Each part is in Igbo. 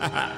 ha ha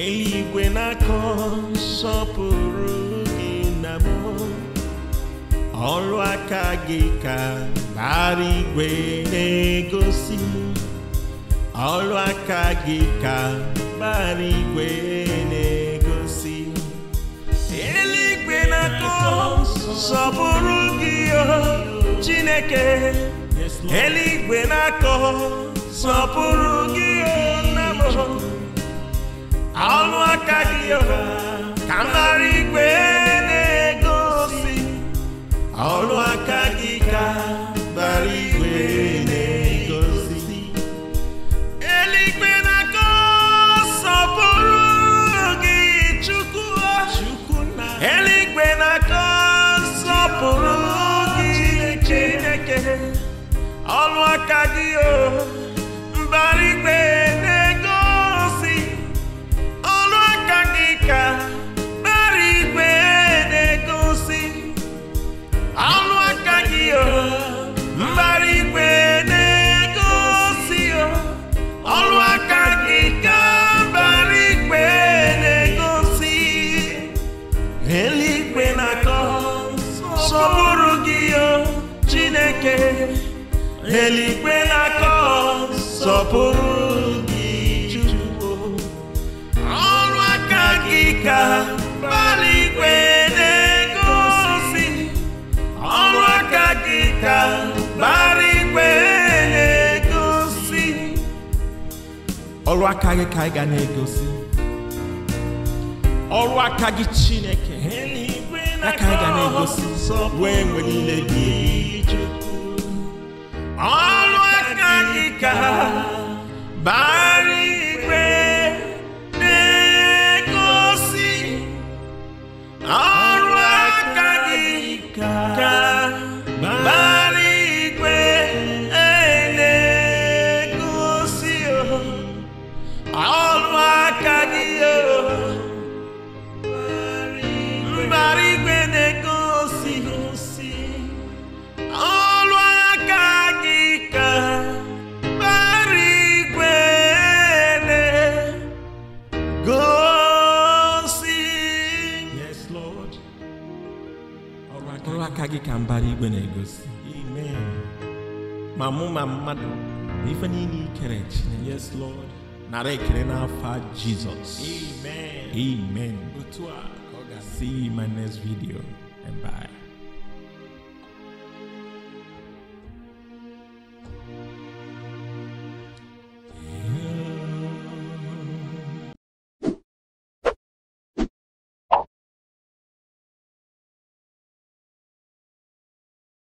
eluigwe na-akọ nsọpụrụ gị na mmụọ ọrụ aka gị ka bara igwe na-egosi ọrụ aka gị ka bara igwe na-egosi eluigwe na-akọ nsọpụrụ gị Chineke eluigwe na-akọ nsọpụrụ gị aka gị ka mara igwe na-egosi ọrụ aka gị ka bara igwe na-egosi eluigwe na-akọ sọpụrụ gị chukwu eluigwe na-akọ sọpụrụ gị chineke ọrụ aka gị o eke eluigwe na-akọ sọpụrụ gị Chukwu ọrụ aka gị ka mbara na-egosi ọrụ aka gị ka mbara na-egosi ọrụ aka gị ka ịga ga na-egosi ọrụ aka gị Chineke aka ị ga na-egosi wee nwere ile gị alwakalika mkpụrụ aka gị ka mbara igwe na-egosi amen ma mụ ma mmadụ na ife niile ikere chineke yes lord nara ekele n'afọ jizọs amen amen ga-see in my next video and bye